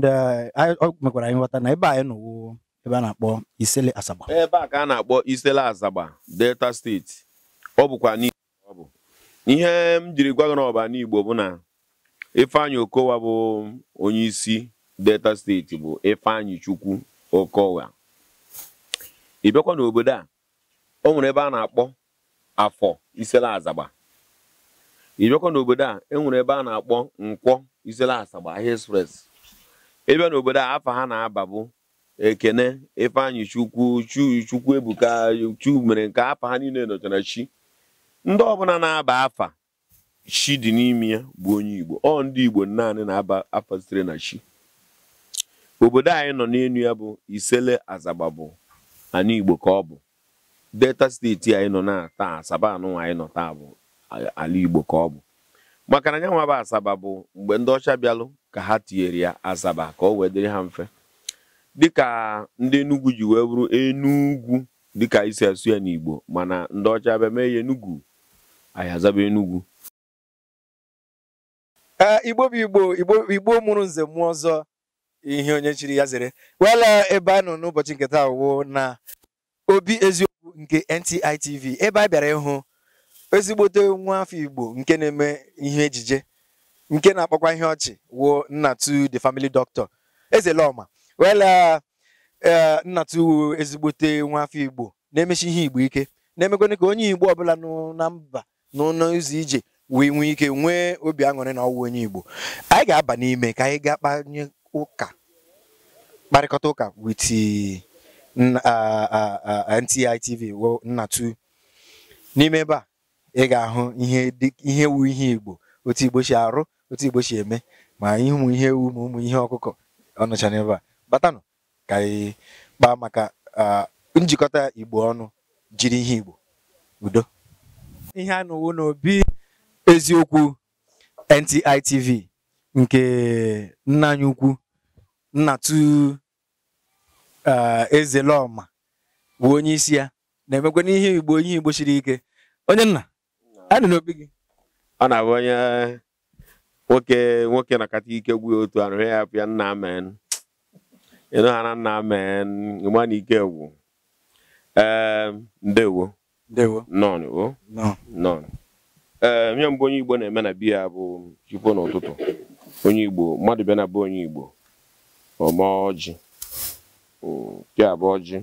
Uh, oh, mekwara anyị nghọta na ebe anyị nọwo ebe a na-akpọ Isele Asaba ebe a ka a na-akpọ Isele Asaba Delta steeti ọ bụkwa ọ bụ ihe m jiri gwa gị ọba n'Igbo bụ na Ifeanyi Okowa bụ onye isi Delta steeti bụ Ifeanyi Chukwu Okowa ị bịakwa n'obodo a o nwere ebe a na-akpọ afọ Isele Asaba ị bịakwa n'obodo a e nwere ebe a na-akpọ nkwọ Isele Asaba ahịa express ebe n'obodo a afa ha na-aba bụ ekene ifeanyị chukwu chukwu ebuka chu mere nke afa ha niile nọchara chi ndị ọbụla na-aba afa chi dị n'ime ya bụ onye igbo ọ ndị igbo naanị na-aba afa sitere na chi obodo anyị nọ n'elu ya bụ isele azagba bụ igbo ka ọ bụ delta steeti anyị nọ na taa asaba anụ anyị nọ taa bụ ala igbo ka ọ bụ maka na nyanwa bụ asaba bụ mgbe ndị ọcha bịalụ ka ha tinyere ya asaba ka o wee dịrị ha mfe dịka ndị enugwu ji wee bụrụ enugwu dịka isi asụ ya n'igbo mana ndị ọcha bịa mee ya enugwu anyị azaba enugwu igbo bụ igbo igbo mụrụ nze mmụọ ọzọ ihe onye chiri ya zere wela ebe a nọ n'ụbọchị nketa taa wụ na obi eziokwu nke ntitv ebe a bịara ịhụ ezigbote nwa afọ Igbo nke na-eme ihe ejije nke na-akpọkwa ihe ọchị wo Nnatu the family doctor Ezeloma wela e, Nnatu wuo ezigbote nwa afọ Igbo na-emechi ihe Igbo ike na-emekwana ka onye Igbo ọbụla nọ na mba n'ụlọ izu ije wee nwee ike nwee obi aṅụrị na ọwụ onye Igbo anyị ga-aba n'ime ka anyị gaa kpanye ụka kparịkọta ụka with NTI TV Nnatu n'ime ebe a ị ga-ahụ ihe wu ihe igbo otu igbo si arụ otu igbo si eme ma ụmụ ihe ewu ma ụmụ ihe ọkụkọ ọnụcha n'ebe a batanụ ka anyị kpaa maka njikọta igbo ọnụ jiri ihe igbo udo ihe a nụwo n'obi eziokwu ntitv nke nna anyị ukwu Nnatụ Ezelọma bụ onye isi ya na-emekwa n'ihe igbo ihe igbo siri ike onye nna adị n'obi gị ọ na-abụ onye nwoke nwoke na-akata ike gwụ otu arụ ya apụ nna amen ịnụ ha na nna amen ịma na ike gwụ ee ehm, ndewo nọọ nọọ ee ehm, nye mbụ onye igbo na-eme na biya bụ chukwu n'ụtụtụ onye igbo mmadụ bịa na be onye igbo ọma ọjị hmm, ya bụ ọjị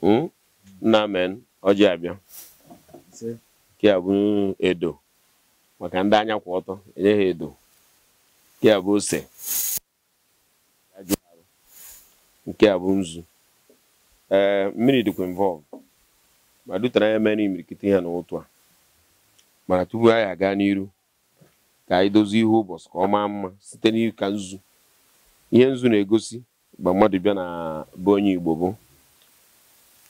hmm, nna amen ọjị abịa nke a bụ edo maka ndị anya kwụ ọtọ enye ha edo nke a bụ ose nke a bụ nzu ee mmiri dịkwa involve ma dutara ya mere imirikiti ha n'ụtụ a mana tupu anyị aga n'iru ka anyị dozie ihe ụbọchị ka ọ maa mma site n'ịka nzu ihe nzu na-egosi mgbe mmadụ bịa na be onye Igbo bụ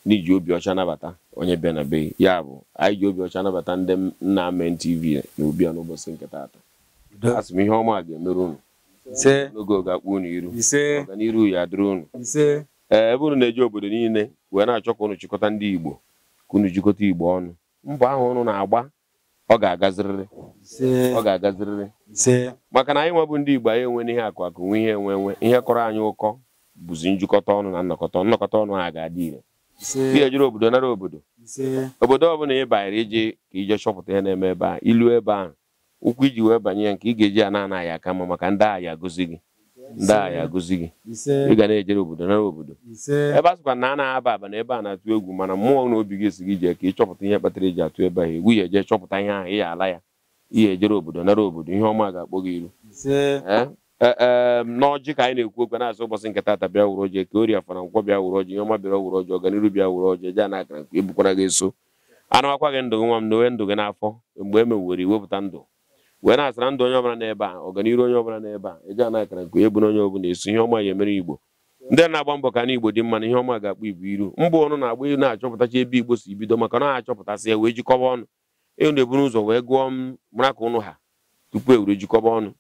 n'iji obi ọcha nabata onye bịa na be ya bụ anyị ji obi ọcha nabata ndị nna Amen TV na n'ụbọchị nke taata asị m ihe ọma ga-emere unu n'oge oge akpụ unu iru ọganiru ya dịrị unu ee ebe unu na-eji obodo niile wee na-achọ ka unu chịkọta ndị Igbo ka unu chịkọta Igbo ọnụ mbọ ahụ unu na-agba ọ ga-agazirịrị ọ ga-agazirịrị maka na anyị nwa bụ ndị Igbo anyị enwe n'ihe akụ akụ nwe ihe enwe enwe ihe kọrọ anyị ụkọ bụzi njikọta ọnụ na nnọkọta nnọkọta ọnụ ha ga-adị ire ga-ejere obodo nara obodo obodo ọbụla ị banyere ije ka ije chọpụta ya na-eme ebe a ilu ebe ahụ ụkwụ iji wee banye ya nke ị ga-eji ya na-anaghị aka mma maka ndị agha agụzi gị ndị agha agụzi gị ị ga na-ejere obodo nara obodo ebe a na a na-aba aba na ebe a na-atụ egwu mana mmụọ na obi gị esi gị jee ka ị chọpụta ihe kpatara eji atụ ebe ahụ egwu ya eje chọpụta ihe ahụ ị ya ala ya ihe ejere obodo nara obodo ihe ọma ga-akpọ gị ilu Eh, ehm, n'ọjị ka anyị na-ekwu okwu na-asị ụbọchị nke tata bịa wuru ọjị ka ori afara nkwọ bịa wuru ọjị ọma bịa wuru ọjị ọganiru bịa wuru ọjị ja na akara nkwe ebukwara gị eso anawakwa gị ndụ gị nwa m na ndụ gị n'afọ mgbe e mewere iwepụta ndụ wee na-asara ndụ onye ọbụla n'ebe a ọganiru onye ọbụla n'ebe a eji ana akara nkwe ebu na onye ọbụla eso ihe ọma ya emere igbo ndị na-agba mbọ ka na igbo dị mma na ihe ọma ga-akpụ igbo iru mbụ ọnụ na-agba na-achọpụtacha ebe igbo si bido maka na achọpụtasị ya wee jikọba ọnụ enu eburu ụzọ wee gụọ m ka ụnụ ha tupu e were jikọba ọnụ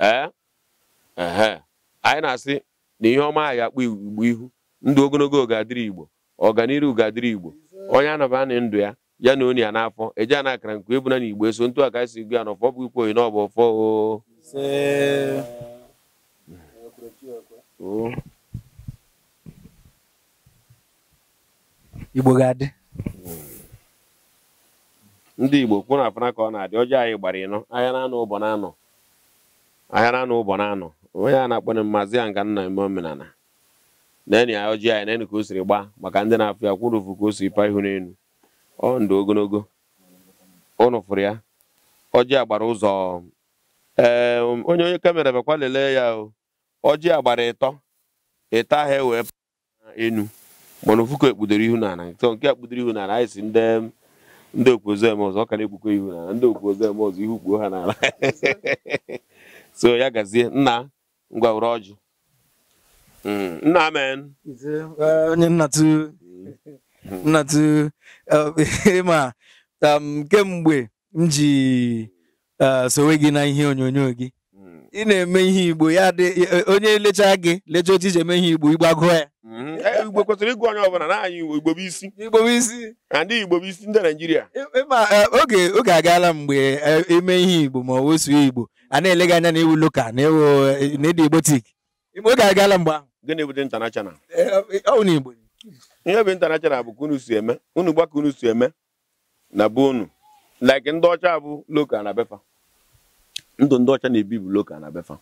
ee anyị na-asị na ihe ọma anyị akpụ igbo ihu ndụ ogologo oge adịrị igbo ọganiru ga-adịrị igbo onye anaba ndụ ya ya na onye ya n'afọ eji ana akara nke ebuna na igbo eso ntụ aka si gụ ya na ọfọ bụ ikwu oyi na ọbụ ọfọ igbo ga-adị ndị igbo kwụ na afọ ka ọ na-adị ọjọọ anyị gbara ịnọ ahịa na anọ ụbọ na anọ ahịara anụ ụbọ na anụ onye a na-akpọrọ mmazi ya nga nna eme omenala neni ya ọjị anyị e neni ka o siri gbaa maka ndị na-afụ ya kwụrụ ụfụ ka o siri paa ihu n'elu ọ ndụ ogologo ụnụ fụrụ ya ọjị agbara ụzọ ee onye onye kamera bakwa lelee ya o ọjị agbara gbara ịtọ ịtọ ahụ e wee enu mana ofu ka ekpudoro ihu n'ala nke a ihu n'ala anyị si ndị ndị okpuozu eme ọzọ ọ ka na-ekpukọ ihu n'ala ndị okpuozu eme ọzọ ihu kpuo ha n'ala so ya gazie nna ngwa were ọjụ mm, nna amen eh, onye nnatu mm. nnatụ eh, ịma um, kemgbe m ji eh, sowe gị na ihe onyonyo gị ị na-eme ihe igbo ya dị e, onye lechaa gị lecha otu iji eme ihe igbo igbago ya mm-hmm. igbo kwesịrị ịgụ onye ọbụla na-anyị igbo bụ isi igbo bụ isi ndị igbo bụ isi ndị naijiria ma e, oge oge agaala mgbe eme ihe igbo ma wesuo igbo a na-ele gị anya na ewu loka na ewu na-ede oge agaala mgbe ahụ gịnị bụ intanashonal e, ọ na igbo ihe bụ ntanachana bụ kunu unu si eme unu gbaka unu si eme na be unu like ndị ọcha bụ loka na befa. ndụ ndị ọcha na-ebi bụ loka na befa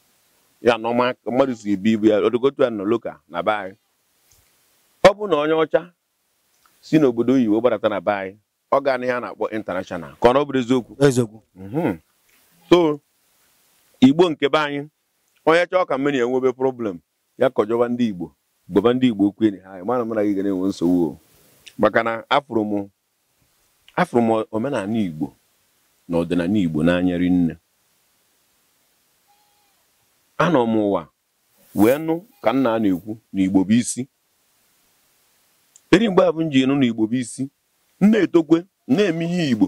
ya na ọma mmadụ si ebi ibu ya odogotu ya nọ loka na be anyị ọ bụ na onye ọcha si n'obodo oyibo gbadata na be anyị ọ gaa na ihe a na-akpọ intanashọnal ka ọ na ọ bụrụ eziokwu eziokwu mhm. so igbo nke be anyị onye chọọ ka mmiri enwebe problem ya kọjọba ndị igbo gbaba ndị igbo okwu enyi ha anyị mana mara gị ga na-enwe nsogbu maka na afụrụ m omenala igbo na ọdịnala igbo n'anya rinne anọ m ụwa wee nụ ka nna na-ekwu na igbo bụ isi eri mgbe abụ m ji nụ na igbo bụ isi na-etokwe na-eme ihe igbo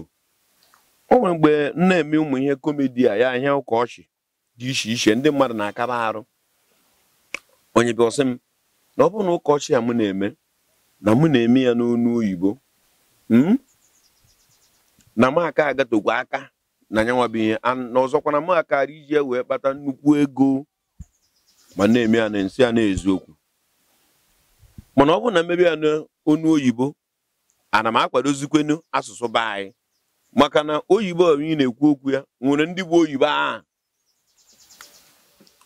o nwere mgbe na-eme ụmụ ihe kọmedi a ya ahịa ụka ọchị dị iche iche ndị mmadụ na akara arụ onye bịa ọsị m na ọ bụrụ na ụka ọchị a m na-eme na mụ na-eme ya n'onu oyibo hmm? na m aka agatokwa aka na nyanwa bụ ihe na ọzọkwana m akara iji ya wee kpata nnukwu ego ma na-eme ya na nsị ya na eziokwu mana ọ bụrụ na mmebi ya onu oyibo ana m akwadozikwenu asụsụ be anyị maka na oyibo onye na-ekwu okwu ya nwere ndị bụ oyibo ahụ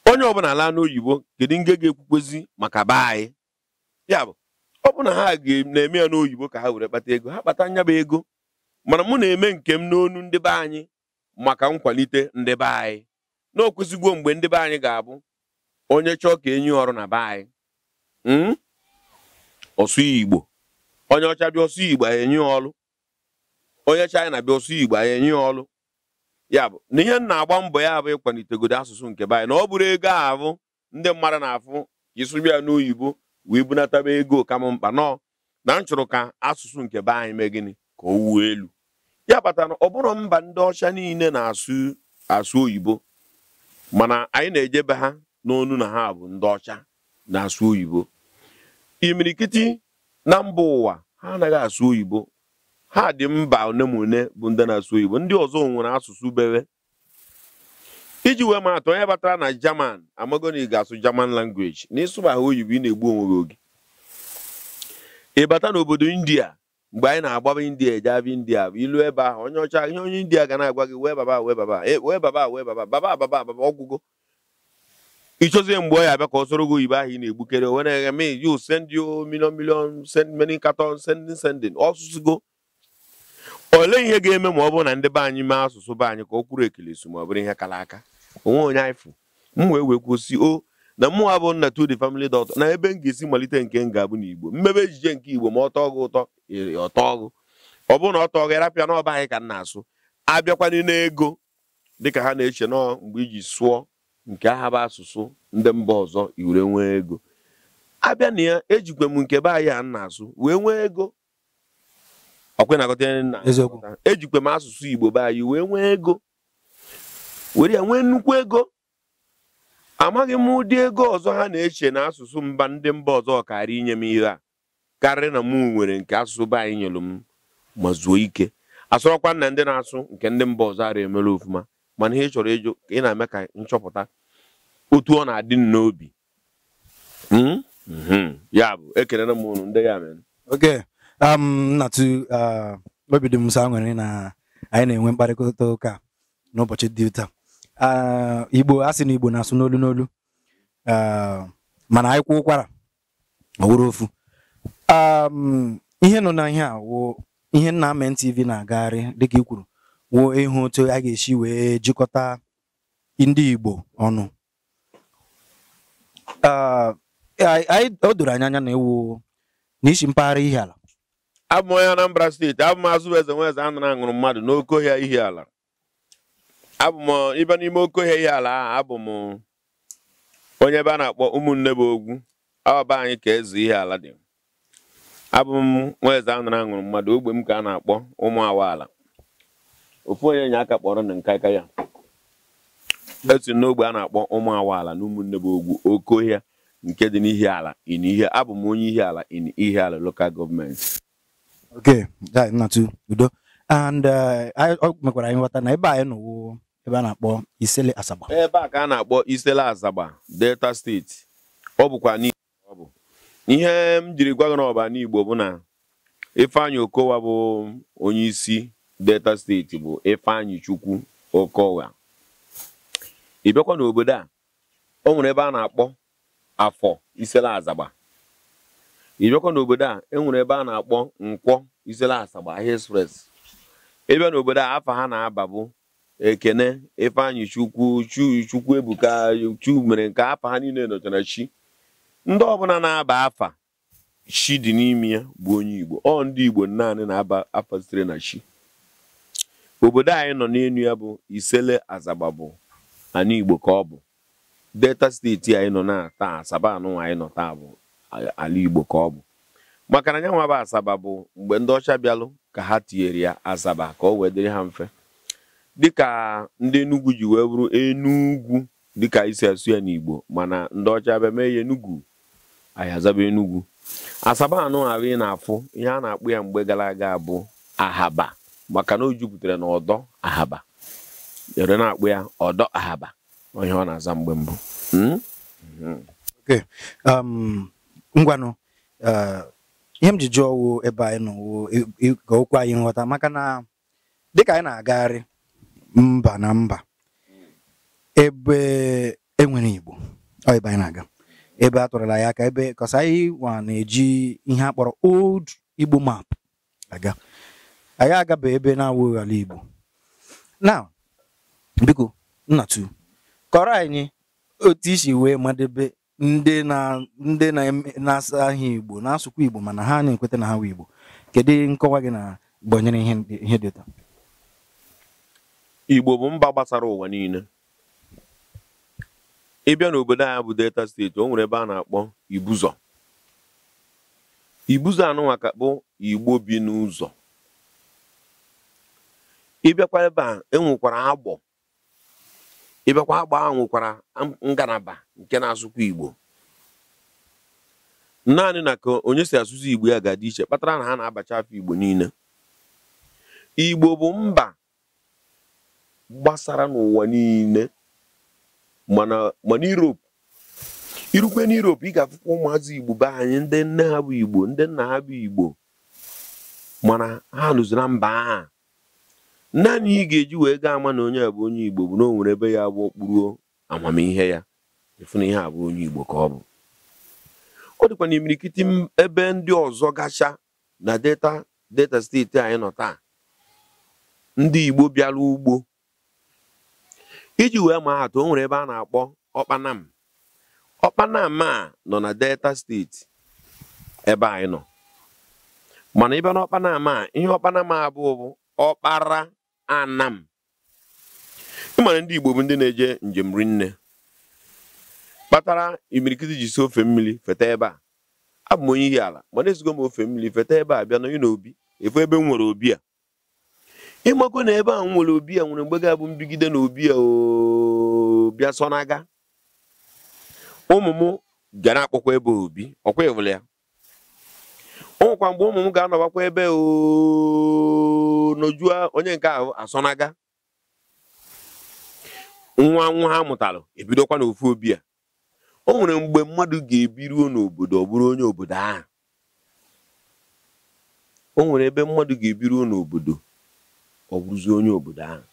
onye ọbụla ala n'oyibo kedu nge ga-ekwukwezi maka be anyị ya bụ ọ bụ na ha na-eme ya n'oyibo ka ha were kpata ego ha kpata nya bụ ego mana mụ na-eme nke m n'onu ndị be anyị maka nkwalite ndị be anyị na mgbe ndị be anyị ga-abụ onye chọọ ka enyi ọrụ na be anyị hmm? ọsụ igbo onye ọcha bịa ọsụ igbo enyi ọlụ onye china bịa ọsụ igbo enyi ọlụ ya bụ na ihe na-agba mbọ ya bụ ịkwalitegodo asụsụ nke be anyị na ọ bụrụ ego ahụ ndị mmadụ na-afụ isụbịa n'oyibo wee ego kam mkpa nọ na m chọrọ ka asụsụ nke be anyị mee gịnị ka o wuo elu ya kpatara na ọ bụrụ mba ndị ọcha niile na-asụ asụ oyibo mana anyị na-ejebe ha n'onu na ha bụ ndị ọcha na-asụ oyibo imirikiti na mba ụwa ha anaghị asụ oyibo ha dị mba one ma one bụ ndị na-asụ oyibo ndị ọzọ nwere asụsụ bere iji wee ma onye batara na jaman amagoni ga-asụ jaman language na ịsụba ha oyibo ị na-egbu onwe gị oge ịbata n'obodo india mgbe anyị na-agbaba india eje india bụ ilu ebe ahụ onye ọcha ihe onye india ga na-agwa gị wee baba wee baba e, wee baba wee baba baba ababa ababa ịchọzie mgbe ọ ya abịa ka ọ soro gị oyibo ahụ ị na-egbukere onwe na-eghe me you send you million million send many carton sending sending ọsụsụgo olee ihe ga-eme ma ọ bụrụ na ndị be anyị mee asụsụ be anyị ka ọ kwuru ekele so ma ọ bụrụ ihe kara aka onwe onye anyị m wee wee kwụsị o na mmụọ abụ nna to the family doctor na ebe m ga-esi malite nke m ga-abụ n'Igbo mmebe ejije nke Igbo ma ọ tọọ ụtọ ọ tọọ ọ bụrụ na ọ tọọ gị n'ọba anyị ka nna asụ abịakwana n'ego dịka ha na-eche nọọ mgbe iji sụọ nke aha bụ asụsụ ndị mba ọzọ iwere nwee ego abịa na ya ejikwa m nke be anyị a na-asụ wee nwee ego ejikwa m asụsụ Igbo be anyị wee nwee ego were ya nwee nnukwu ego amaghị m ụdị ego ọzọ ha na-eche na asụsụ mba ndị mba ọzọ karịa inye m ihe a karịa na mụ nwere nke asụsụ be anyị nyelụ m ma zuo ike asụrọkwa na ndị na-asụ nke ndị mba ọzọ ara emere ofụma mana ihe chọrọ ịjụ ị na-eme ka nchọpụta otu ọ na-adị n'obi hmm? Hmm. ya bụ ekelere m ụnụ ndị ya mere oke um, uh, obi dị m sọ nwere na anyị na-enwe mkparịta ụka n'ụbọchị dị Ah, igbo asị na igbo na-asụ n'olu n'olu ah, mana anyị kwụ ụkwara ọ ofu um, ihe nọ na ihe a wụ ihe nna na-agagharị dịka ikwuru kwuru wụ ịhụ otu a ga-esi wee jikọta ndị igbo ọnụ ah, o doro anya anya na ewu n'isi mpaghara ala. abụ m onye Anambra steeti abụ m azụ eze nwa eze anara aṅụrụ mmadụ n'oke ihi ala abụ m ibe n'ime oke ihe ala ahụ abụ m onye ebe a na-akpọ ụmụnne bụ ogwu ọba anyị ka ezu ihe ala dị abụ m nwa eze anụrụ aṅụrụ mmadụ ogbe m ka a na-akpọ ụmụ ala. ofu onye nye aka kpọrọ na aka ya esi n'ogbe a na-akpọ ụmụ awaala na ụmụnne bụ ogwu oke nke dị n'ihi ala in ihe abụ m onye ihe ala in ihe ala lokal gọọmenti okay udo and uh, mekwara anyị nghọta na ebe anyị nọwo ebe a na-akpọ Isele Asaba ebe a ka a na-akpọ Isele Asaba Delta steeti ọ bụkwa ọ bụ ihe m jiri gwa gị n'ọba n'Igbo bụ na Ifeanyi Okowa bụ onye isi Delta steeti bụ Ifeanyi Chukwu Okowa ị bịakwa n'obodo a o nwere ebe a na-akpọ afọ Isele Asaba ị bịakwa n'obodo a e nwere ebe a na-akpọ nkwọ Isele Asaba ahịa express ebe n'obodo a afọ ha na-aba bụ ekene ifeanyị chukwu chukwu ebuka chu mere nke afa ha niile nọchara chi ndị ọbụla na-aba afa chi dị n'ime ya bụ onye igbo ọ ndị igbo naanị na-aba afa sitere na chi obodo anyị nọ n'elu ya bụ isele asaba bụ ana igbo ka ọ bụ delta steeti anyị nọ na taa asaba anụ anyị nọ taa bụ ala igbo ka ọ bụ maka na anyanwụ bụ asaba bụ mgbe ndị ọcha bịalụ ka ha tinyere ya asaba ka o wee dịrị ha mfe dịka ndị enugwu ji wee bụrụ enugwu dịka isi asụ ya n'igbo mana ndị ọcha bịa mee ya enugwu ayazaba enugwu asaba anụ ahụ ị na-afụ ihe a na-akpụ ya mgbe gara aga bụ ahaba maka na o jupụtara na ọdọ ahaba ere na-akpụ ya ọdọ ahaba onye ọ na-aza mgbe mbụ hmm? Hmm. Um, ngwanụ uh, ihe m ji jụọ ebe anyị nọ ka okwu anyị nghọta maka na dịka anyị na-agagharị mba na mba ebe enwere igbo ọ ebe anyị na-aga ebe a tụrụla ya aka ebe kọsa na-eji ihe akpọrọ old igbo map aga anyị agaba ebe na-awụghị ala igbo na biko nnatu kọrọ anyị otu isi wee madebe ndị na-asa ahịa igbo na-asụkwa igbo mana ha na-ekweta na ha wee igbo kedu nkọwa gị na gbanyere ihe dị ụtọ Igbo bụ mba gbasara ụwa niile ị bịa n'obodo a bụ Delta steeti o nwere ebe a na-akpọ Ibuzo. Ibuzọ anụnwa ka bụ Igbo bi n'ụzọ ịbịakwa ebe a enwekwara agbọ ịbịakwa agbọ ahụ nwekwara ngalaba nke na-asụkwa Igbo naanị na ka onye si asụzi Igbo ya ga-adị iche kpatara na ha na-abacha afọ Igbo niile Igbo bụ mba gbasara n'ụwa niile mana mana Europe irukwe na ị ga-afụkwa ụmụazị Igbo be anyị ndị nne ha bụ Igbo ndị nna ha bụ Igbo mana ha nụzi na mba ha. naanị ị ga-eji wee gaa ama na onye a bụ onye Igbo bụ na o nwere ebe ya bụ okpuru amamihe ya efu na ihe a bụ onye Igbo ka ọ bụ ọ dịkwa na imirikiti ebe ndị ọzọ gacha na delta steeti anyị nọ taa ndị Igbo bịara ugbo iji wee maa atụ o nwere ebe a na-akpọ ọkpanam ọkpanam a nọ na delta steeti ebe anyị nọ mana ibe na ọkpanam a ihe ọkpanam a bụ bụ ọkpara anam ịmara ndị igbo bụ ndị na-eje njem rinne kpatara imirikiti ji si ofe mmiri feta ebe a abụ m onye ihi ala mana ezigo m ofe mmiri feta ebe a bịa n'onye na obi efu ebe m nwere obi a ịmago na ebe a nwere obi a nwere mgbe ga-abụ mbigide na obi a bịa sọ n'aga ụmụ m ga na-akpọkwa ebe obi ọkwa ịwụla ya ụmụkwa mgbe ụmụ m ga-anọbakwa ebe nọjua onye nke ahụ asọnaga nwa nwa ha mụtara ebidokwa n'ofu obi a o nwere mgbe mmadụ ga-ebiruo n'obodo ọ bụrụ onye obodo ahụ o nwere ebe mmadụ ga-ebiruo n'obodo ọ bụrụzie onye obodo ahụ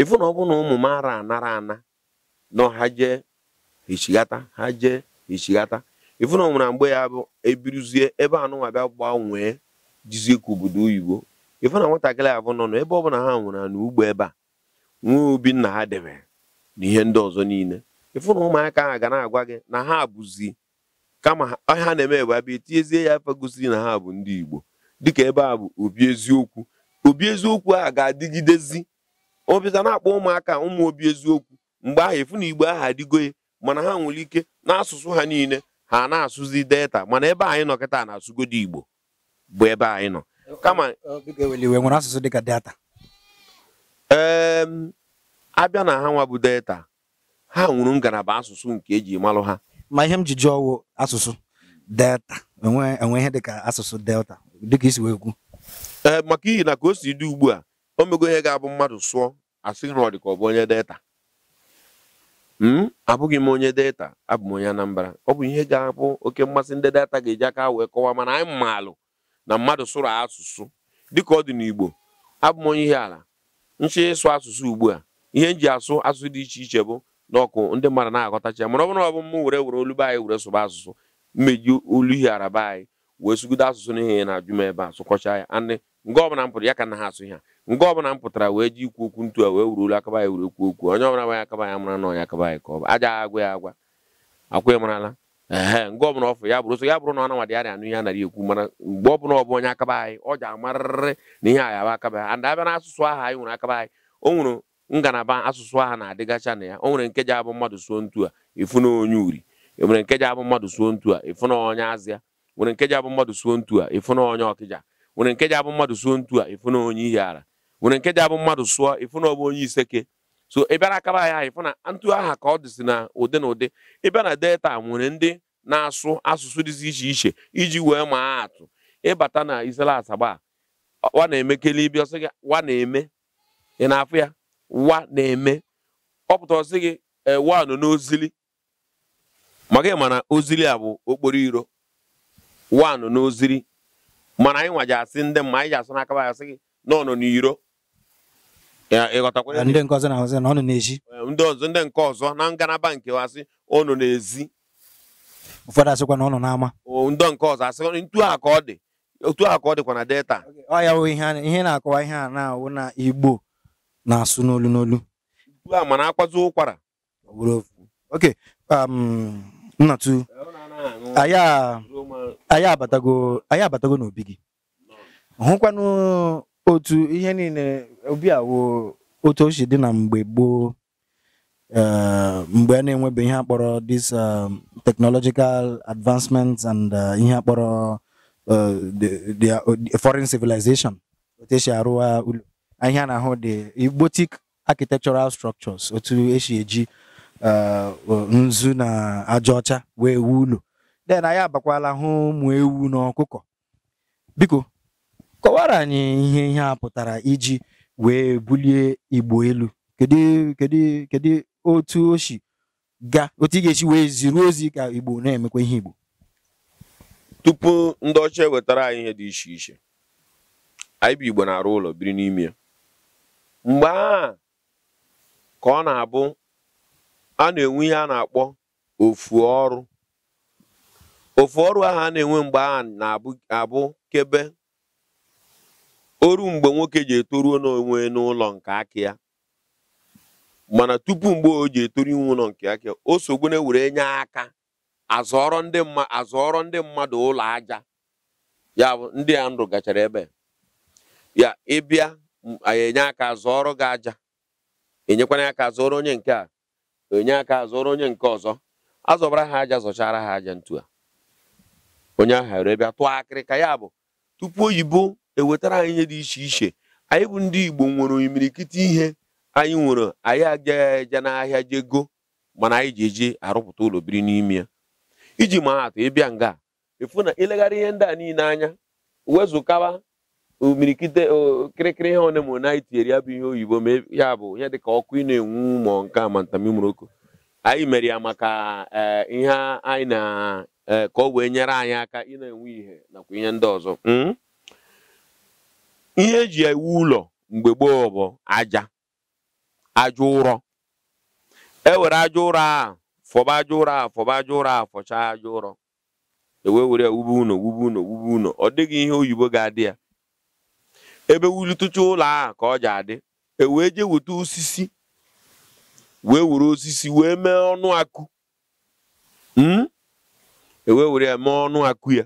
ịfụ na ọ bụrụ na ụmụ m ara anara ana nọ ha jee echighata ha jee echighata ịfụ na ọ mgbe ya bụ ebiruzie ebe anụnwa bịa gbanwee jizie ka obodo oyibo ịfụ na nwatakịrị abụ nọ n'ebe ọ bụla ha nwere na ugbo ebe a nwee obi nna ha debe na ihe ndị ọzọ niile ịfụ na ụmụaka ahụ ga na-agwa gị na ha abụzi kama ha na-eme ebe abịa etiezie ya afọ gosiri na ha bụ ndị igbo dịka ebe a bụ obi eziokwu obi eziokwu a ga-adịgidezi obita na-akpọ ụmụaka ụmụ obi eziokwu mgbe ahụ efu na igbo ahụ adịgoye mana ha nwere ike n'asụsụ ha niile ha na-asụzi delta mana ebe anyị nọ kịta na-asụgodo igbo bụ ebe anyị nọ kama nwere asụsụ dịka delta ehm, abịa na ha nwa bụ delta ha nwụrụ ngalaba asụsụ nke eji malụ ha ma ihe m ji jụọ asụsụ delta enwe ihe dịka asụsụ delta dịka isi wee kwu ee eh, maka ihi na ka o si dị ugbu a o mego ihe ga-abụ mmadụ sụọ asị na ọ dị ka ọ bụ onye data m hmm? abụghị m onye data abụ m onye Anambra ọ bụ ihe ga-abụ oke mmasị ndị data ga-eji aka wee kọwaa mana anyị maalụ na mmadụ sụrụ asụsụ dịka ọ dị n'Igbo abụ m onye ihe ala nchị ịsụ asụsụ ugbu a ihe nji asụ asụsụ dị iche iche bụ n'ọkụ ndị mmadụ na-aghọtacha ya mana ọ bụrụ ọ bụ m were were olu anyị were sụba asụsụ mmeji olu ihe araba anyị wee sugide asụsụ n'ihe na-ajụ m ebe a sụkọcha ya nga ọbụla m pụtara ya ka na ha asụ ihe nga ọbụla m pụtara wee ji ikwu okwu ntu a wee wuru olu akaba ya wuru ekwu okwu onye ọbụla gbanye akaba ya mara na onye akaba ya ka ọ bụ aja agwa ya agwa akwa ya marala ee nga ọbụla ọfụ ya bụrụ so ya bụrụ na ọnanwa dị ya anụ ihe anaghị ekwu mana mgbe ọbụla ọ bụ onye akaba anyị ọ ji amarịrị na ihe anyị abụ akaba ya and abịa na asụsụ aha anyị nwere akaba anyị o nwere ngalaba asụsụ aha na-adịgacha na ya o nwere nke ji abụ mmadụ suo ntu a ịfụ na onye uri e nwere nke ji abụ mmadụ suo ntu a ịfụ na onye azịa e nwere nke ji abụ mmadụ suo ntu a ịfụ na onye ọkịja nwere nke abụ mmadụ suo ntu a ịfụ na onye ihe ara nwere nke abụ mmadụ sụọ ịfụ na ọ bụ onye iseke so ị bịara akaba anya ịfụ na ntụ aha ka ọ dịsị na ụdị na ụdị ị na delta nwere ndị na-asụ asụsụ dịzi iche iche iji wee maa atụ ịbata na isela asaba wa na-eme kelebi ọsị gị wa na-eme ị na-afụ ya wa na-eme ọ pụta ọsị gị ewa nọ n'ozili maka ị ma na ozili a bụ okporo iro wa nọ n'ozili mana anyị nwa ji asị ndị mma anyị ji asụ n'aka asị gị na ọ nọ n'iro ndị ọzọ ndị nke ọzọ na ngalaba nke asị ọ nọ n'ezi ụfọdụ asịkwa na ọ nọ n'ama ndị nke ọzọ asị ntu a ka ọ dị otu a ka ọ dịkwa na delta ọ wụ ihe na-akọwa ihe a na-awụ na igbo na-asụ n'olu n'olu a mana akwazi ụkwara oke nnatu a. anyị abatago anyị abatago n'obi gị hụkwanụ otu ihe niile obi awụ otu o si dị na mgbe gboo eh, mgbe a na-enwebe ihe akpọrọ this um, technological advancements and uh, ihe akpọrọ uh, the uh, foreign civilization otu esi arụwa ụlọ ihe a na-ahụ dị igbotic architectural structures otu esi eji nzu na aja ọcha wee wuo ụlọ den anyị abakwala hụ ụmụ ewu na ọkụkọ biko kọwara anyị ihe ihe a pụtara iji wee bulie igbo elu kedu kedu kedu otu o si ga otu ị ga-esi wee ziri ozi ka igbo na-emekwa ihe igbo tupu ndị ọcha ewetara anyị ihe dị iche iche anyị bụ igbo na-arụ ụlọ biri n'ime ya mgbe a ka ọ na-abụ a na-enwe ihe a na-akpọ ofu ọrụ ofu ọrụ ahụ a na-enwe mgbe a na-abụ kebe oru mgbe nwoke ji etoruo n'onwe n'ụlọ nke aka ya mana tupu mgbe o ji etoru inwe ụlọ nke aka ya o sogbone were nye aka azọrọ ndị azọrọ ndị mmadụ ụlọ aja ya bụ ndị a ndụ gachara ebe ya ịbịa enye aka zọọrọ gị aja enyekwana aka zọrọ onye nke a enye aka zọrọ onye nke ọzọ azọbara ha aja zọchara ha aja ntu a onye ahụ ere bịa tụọ akịrịka ya bụ tupu oyibo ewetara anyị ihe dị iche iche anyị bụ ndị igbo nwere imirikiti ihe anyị nwere anyị agaghị aja n'ahịa jee go mana anyị ji eji arụpụta ụlọ biri n'ime ya iji maa atụ ịbịa nga efu na ileghara ihe ndị a niile anya wezụkaba omirikite okirikiri ihe one m anyị tinyere ya bụ ihe oyibo ma e, ya bụ ihe dịka ọkụ ị na-enwu ma nke amantamimoroko anyị mere ya maka eh, ihe anyị na eh, ka o wee nyere anyị aka ị na-enwe ihe nakwa ihe ndị ọzọ hmm? ihe eji ewu ụlọ mgbe gboo bụ aja aja ụrọ ewere aja ụrọ a fọba aja ụrọ a fọba aja ụrọ a fọchaa aja ụrọ ewee were ya wube ụnọ wube wube ọ dịghị ihe oyibo ga-adị ya ebe wulitucha ụlọ a ka ọ ji adị ewee jee weta osisi wee were osisi wee mee ọnụ akụ hmm? ewee were ya mee ọnụ akụ ya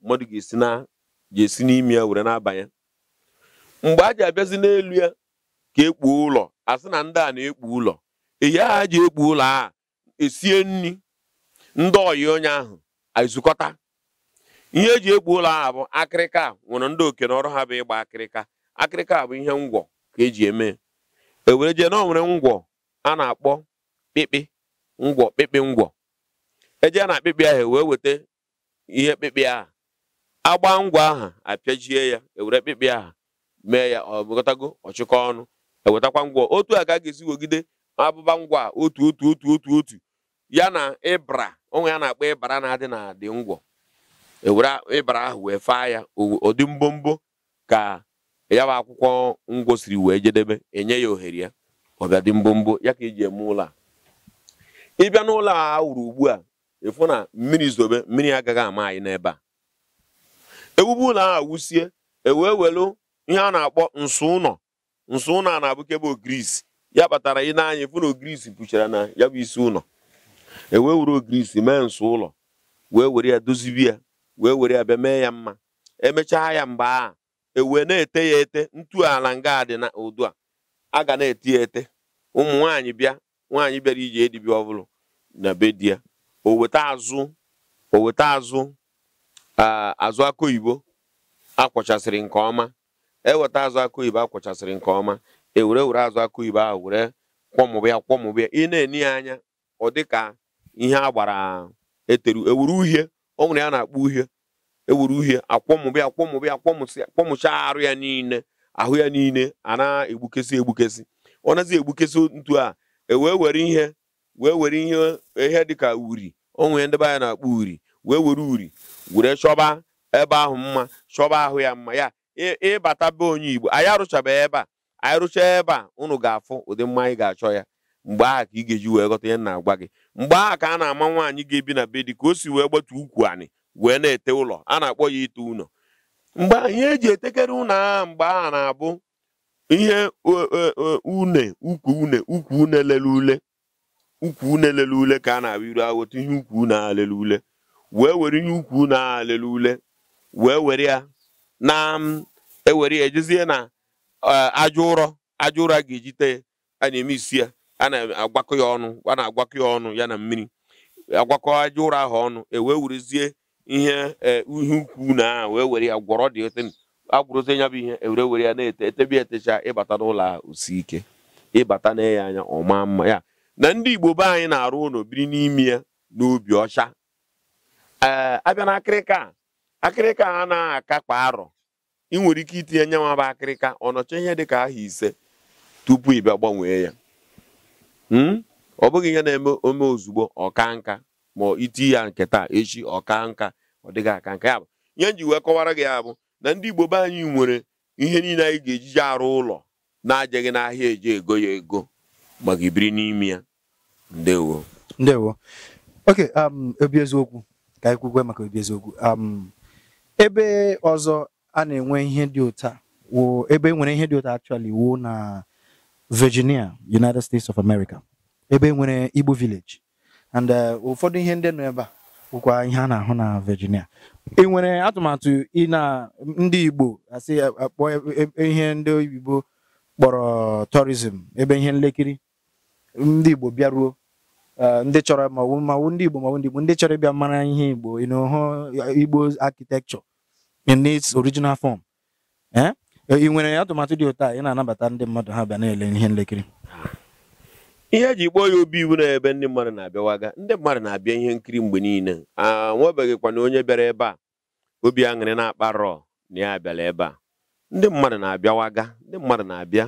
mmadụ ga-esi na ga-esi n'ime ya were na-abanye mgbe a ji abịazi n'elu ya ka ekpuo ụlọ a sị na ndị a na-ekpu ụlọ eyi a ji ekpu ụlọ a esie nri ndị oyi onye ahụ ezukọta ihe eji ekpu ụlọ ahụ bụ akịrịka nwere ndị oke na ọrụ ha bụ ịgba akịrịka akịrịka bụ ihe ngwọ ka eji eme ewere jee na o nwere ngwọ a na-akpọ kpịkpị ngwọ kpịkpị ngwọ a e na akpịkpị ahụ e wee weta ihe kpịkpị ahụ agba ngwa aha apịajie ya ewere kpịkpị aha mee ya ọ bụgotago ọchịkọ ọnụ ewetakwa ngwọ otu a ka a ga-esi wegide abụba ngwa otu otu otu otu otu ya na ịbra onwe ya na-akpọ ịbara na-adị na adị ngwọ ewere ịbara ahụ wee faa ya ụdị mbombo ka ya bụ akwụkwọ ngwo siri wee jedebe enye ya ohere ya ọ ga mbombo ya ka eji eme ụlọ a ịbịa n'ụlọ a wuru ugbu a ịfụ na mmiri zobe mmiri agaghị ama anyị n'ebe a ewube ụlọ ahụ wusie ewee welu ihe a na-akpọ nsọ ụlọ nsọ ụlọ a na-abụkebe ogirisi ya kpatara ị n'anya ịfụ na ogirisi kpuchara na ya bụ isi ụlọ ewee were ogirisi mee nsọ ụlọ wee were ya dozibi ya wee were ya bịa mee ya mma emechaa ya mgbe a ewee na-ete ya ete ntu ala nga dị na ụdụ a a ga na-eti ete ụmụ nwanyị bịa nwaanyị bịara iji edibia ọbụla na be di ya oweta azụ azụ azụ akụ akwọchasịrị nke ọma eweta azụ akụ oyibo akwọchasịrị nke ọma ewere e were azụ akụ ahụ were kwọmụbịa kwọmụbịa ị na-eni ya anya ọ dị ka ihe a gbara eteru ewuru uhie ọ nwere ya na-akpọ uhie ewuru uhie akwọmụbịa akwọmụbịa akwọmụcha arụ ya niile ahụ ya niile a na-egbukesi egbukesi ọ nazi egbukesi ntu a e wee were ihe wee were ihe ihe dịka uri onwe ya be anyị na-akpọ uri wee were uri were chọba ebe ahụ mma chọba ahụ ya mma ya ịbata be onye Igbo anyị arụchabeghị ebe a anyị rụchaa ebe a ụnụ ga-afụ ụdị mma anyị ga-achọ ya mgbe ahụ ka ị ga-eji wee ghọta ya na-agwa gị mgbe aha ka a na-ama nwaanyị ga-ebi na be dị ka o si wee gbatu ukwu anị wee na-ete ụlọ a na-akpọ ya ite ụlọ mgbe ihe eji etekere ụnọ agha mgbe a na-abụ ihe e, e, e, une ukwu une ukwu une lele ule ukwu une ule ka a na-abụ iru weta ihe ukwu une agha ule wee were ihe ukwu une agha ule wee were ya na ewere ya ejezie na aja ụrọ aja ụrọ ga-ejite a na-eme isi ya a na-agwakọ ya ọnụ a na-agwakọ ya ọnụ ya na mmiri agwakọ aja ụrọ ahụ ọnụ ewee werezie ihe e, ihe ukwu na wee were ya gwọrọ dị ote agwụrụte nya bụ ihe ewere were ya na-ete etebi etecha ịbata n'ụlọ ahụ osi ike ịbata na anya ọma mma ya na ndị Igbo be anyị na-arụ ụlọ biri n'ime ya n'obi ọcha ee abịa na akịrịka akịrịka a na akakpa arọ ị nwere ike itinye nye nwa bụ akịrịka ọnọcha ihe dị ka aha ise tupu bịa gbanwee ya hmm? ọ bụghị ihe na-eme ome ozugbo ọka nka ma iti ya nketa echi ọka nka ọ dịghị aka nke ya bụ ihe m ji wee kọwara gị ya bụ na ndị igbo be anyị nwere ihe niile anyị ga ejije arụ ụlọ na-ajeghị n'ahịa eje ego ya ego maka ibiri n'ime ya ndewo ndewo oke um, obi eziokwu ka anyị kwugwe maka obi eziokwu um, ebe ọzọ a na-enwe ihe dị ụta ebe e nwere ihe dị ụta actually wuo na Virginia United States of America ebe e nwere Igbo village and uh, ụfọdụ ihe ndị nọ ebe a bụkwa ihe a na-ahụ na Virginia ị e nwere atụmatụ ị na ndị Igbo asị akpọ e, ihe ndị oyibo kpọrọ tourism ebe ihe nlekiri ndị Igbo bịaruo ndị chọrọ mawu ndị Igbo mawu ndị Igbo ndị chọrọ ịbịa mara ihe Igbo ịnụhụ Igbo architecture in its original form e, ị nwere atụmatụ dị ụtọ a ị na-anabata ndị mmadụ ha bịa na-ele ihe nlekiri ihe eji kpọọ ya obi iwu na ebe ndị mmadụ na-abịawaga ndị mmadụ na-abịa ihe nkiri mgbe niile a nwebeghịkwana onye bịara ebe a obi aṅụrị na-akparọ na ya bịara ebe a ndị mmadụ na-abịawaga ndị mmadụ na-abịa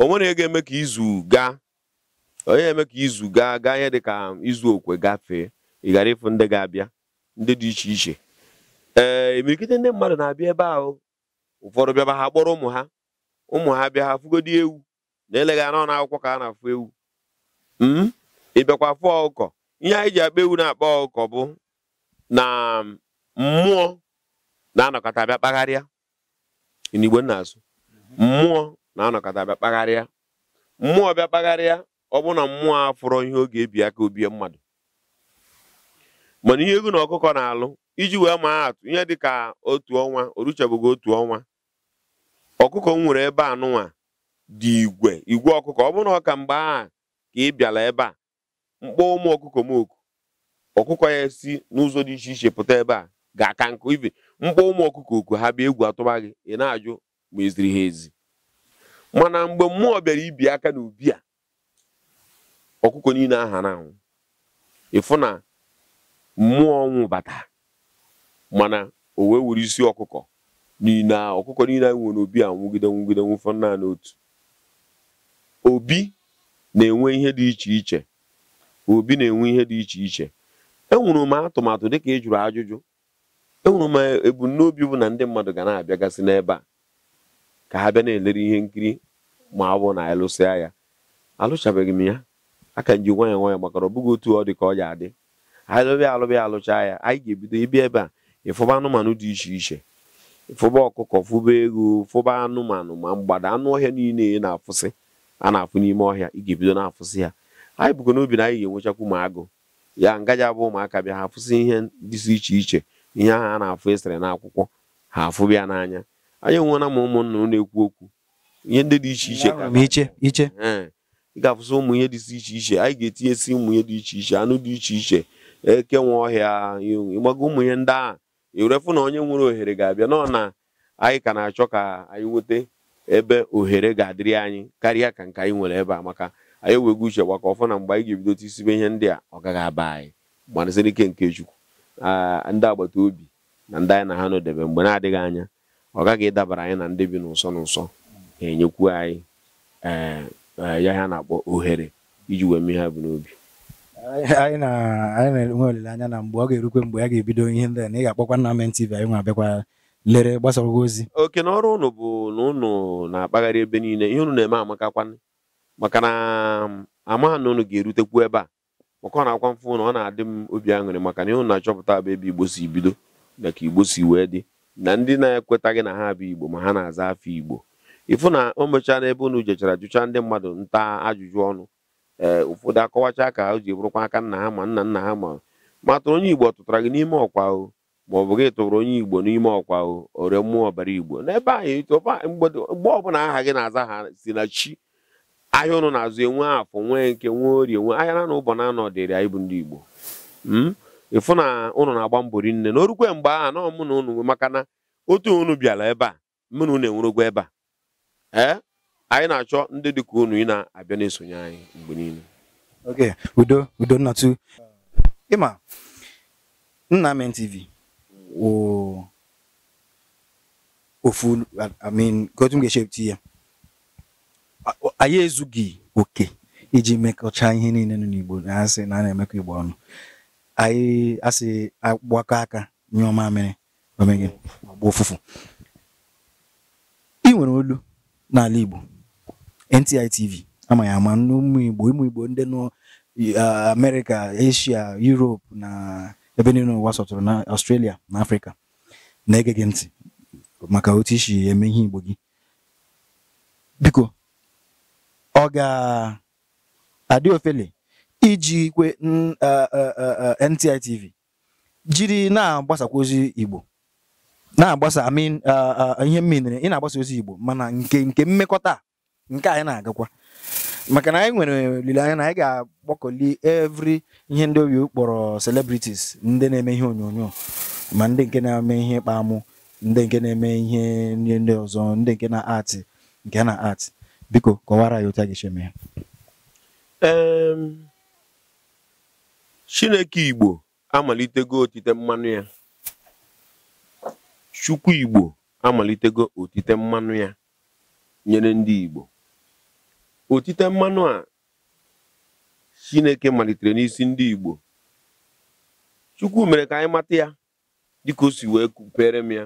onwere ihe ga-eme ka izu gaa onye eme ka izu gaa gaa ihe dị ka izu okwe gafee ị ghara ịfụ ndị ga-abịa ndị dị iche iche ee imirikite e ndị mmadụ na-abịa ebe ahụ ụfọdụ bịaba ha kpọrọ ụmụ ha ụmụ ha bịa ha fụgodi ewu na eleghị anọ na akwụkwọ ka a na-afụ ewu hmm? ịbịakwa afụ ọkụkọ ihe anyị ji akpa ewu na-akpa ọkụkọ bụ na um, mmụọ na-anọkọta bịa kpagharịa n'igbo nna asụ mmụọ na-anọkọta bịa kpagharịa mmụọ bịa kpagharịa ọ bụ na mmụọ afụrọ ihe oge ebi aka obie mmadụ mana ihe egwu na ọkụkọ na-alụ iji wee maa atụ ihe dịka otu ọnwa oruchabụghị otu ọnwa ọkụkọ m nwere ebe anụnwa dị igwe igwe ọkụkọ ọ bụrụ ọ ka mgbe a ka ị bịara ebe a mkpọ ụmụ ọkụkọ m oku ọkụkọ ya si n'ụzọ dị iche iche pụta ebe a ga-aka nkụ ibe mkpọ ụmụ ọkụkọ oku ha bịa egwu atụba gị ị na-ajụ ma eziri ha ezi mana mgbe mmụọ bịara ibi aka n'ubi a ọkụkọ niile aha na-anwụ ịfụ na mmụọ ọnwụ bata mana o wee were isi ọkụkọ niile ọkụkọ niile anyị nwere obi a nwụgide nwụgide nwụfọ naanị otu obi na-enwe ihe dị iche iche obi na-enwe ihe dị iche iche enwere m atụmatụ dịka ị jụrụ ajụjụ enwere m ebumnobi bụ na ndị mmadụ ga na-abịagasị n'ebe a ka ha bịa na-elere ihe nkiri ma ọ bụ na alụsịa e ya alụchabeghị m ya aka m ji nwayọ makara ọ bụghị otu ọ dị ka ọ ya adị Alụbịa alụbịa alụcha ya anyị ga-ebido ịbịa ebe a ịfụba anụmanụ dị iche iche ịfụba ọkụkọ fụba ego fụba anụmanụ ma mgbada anụ ọhịa niile na-afụsị a na-afụ n'ime ọhịa ị ga-ebido na-afụsị ya anyị bụgo n'obi na anyị ga-enwechakwu ma agụ ya ngaji abụ ụmụaka bịa ha afụsị ihe dịsị iche iche ihe ahụ a na-afụ esere akwụkwọ ha afụbịa n'anya anyị enwela m ụmụnna na-ekwu okwu ihe ndị dị iche iche ị ga-afụsị ụmụ ihe si iche iche anyị ga-etinyesi ụmụ ihe dị iche iche anụ dị iche iche eke nwe ọhịa ịgbago ụmụ ihe ndị ahụ ewerefụ na onye nwere ohere ga-abịa nọ na anyị ka na-achọ ka anyị nweta ebe ohere ga-adịrị anyị karịa ka nke anyị nwere ebe a maka anyị ewego uche gbakọ ọfọ na mgbe anyị ga-ebidote isibe ihe ndị a ọ gaghị aba anyị gbanasịrị ike nke Chukwu ndị agbata obi na ndị anyị na ha nọdebe mgbe na-adịghị anya ọ gaghị ịdabara anyị na ndị bi n'ụsọ n'ụsọ ga-enyekwu anyị e, e, ya ha na-akpọ ohere iji wee mee ha bụ n'obi anyị na-enwe olileanya na mgbe ọ ga-erukwe mgbe ya ga-ebido ihe ndị na ị ga-akpọkwa Nna M TV anyị nwa abịakwa lere gbasara ozi oke n'ọrụ ọrụ ụnụ bụ na ụnụ na-akpagharị ebe niile ihe ụnụ na-eme amakakwanụ maka na um, ama na ụnụ ga-erutekwu ebe a maka ọ na-akwa mfụ na ọ na-adị m obi aṅụrị maka na ihe ụnụ na-achọpụta abụ ebe igbo si bido na ka igbo si wee dị na ndị na gị na ha bụ igbo ma ha na-aza afọ igbo ịfụ na o mechaa n'ebe ụnụ jechara jụcha ndị mmadụ nta ajụjụ ọnụ ee eh, ụfọdụ akọwachaa ka o ji bụrụkwa aka nna ha ma nna nna ha ma matụrụ onye igbo ọ tụtara gị n'ime ọkwa o ma ọ bụ gị tụrụ onye igbo n'ime ọkwa ore mmụọ ọbara igbo n'ebe anyị mgbe ọbụla aha gị na-aza ha si na chi ahịa ụnụ na-azụ enwe afọ nwee nke nwee orie nwe ahịa na ụbọ na anọ dịrị anyị bụ ndị igbo hmm? ịfụ na ụnụ na-agba mbọ rinne na orukwe mgbe aha nọ mụ na ụnụ maka na otu ụnụ bịara ebe a mụ na ụnụ enwerogwa ebe a ee anyị na-achọ ndị dịka ụnụ ị na-abịa na-esonye anyị mgbe niile oke udo udo nnatu ịma Nnamen TV o ofu I mean gotu m ga-echepụta ya anyị ezughị oke iji mekọcha ihe niile nọ n'Igbo na-asị na a na-emekọ Igbo ọnụ anyị asị agbakọ aka nye ọma mere omegị agba ụfụfụ ị nwere olu n'ala Igbo NTI TV ama ya ama n'ụmụ Igbo ụmụ Igbo ndị nọ uh, Asia Europe na ebe niile ụwa sọtụrụ na ọstrelia na Afrịka na-ege gị ntị maka otu isi eme ihe Igbo gị biko ọ ga-adị ofele iji kwe NTI jiri na-agbasakwa ozi Igbo na-agbasa amin ihe mmiri ị na-agbasa ozi Igbo mana nke nke mmekọta nke anyị na-agakwa maka na anyị nwere olileanya na anyị ga-agbakọli evri ihe ndị oyi kpọrọ celebrities ndị na-eme ihe onyonyo ma ndị nke na-eme ihe ịkpa ndị nke na-eme ihe nri ndị ọzọ ndị nke na atị nke na atị biko kọwara ya otu a ga ya Chineke Igbo amalitego otite mmanụ ya Chukwu Igbo amalitego otite mmanụ ya nyere ndị Igbo otite mmanụ a chineke malitere n'isi ndị igbo chukwu mere ka anyị mata ya dịka o si wee kupere m ya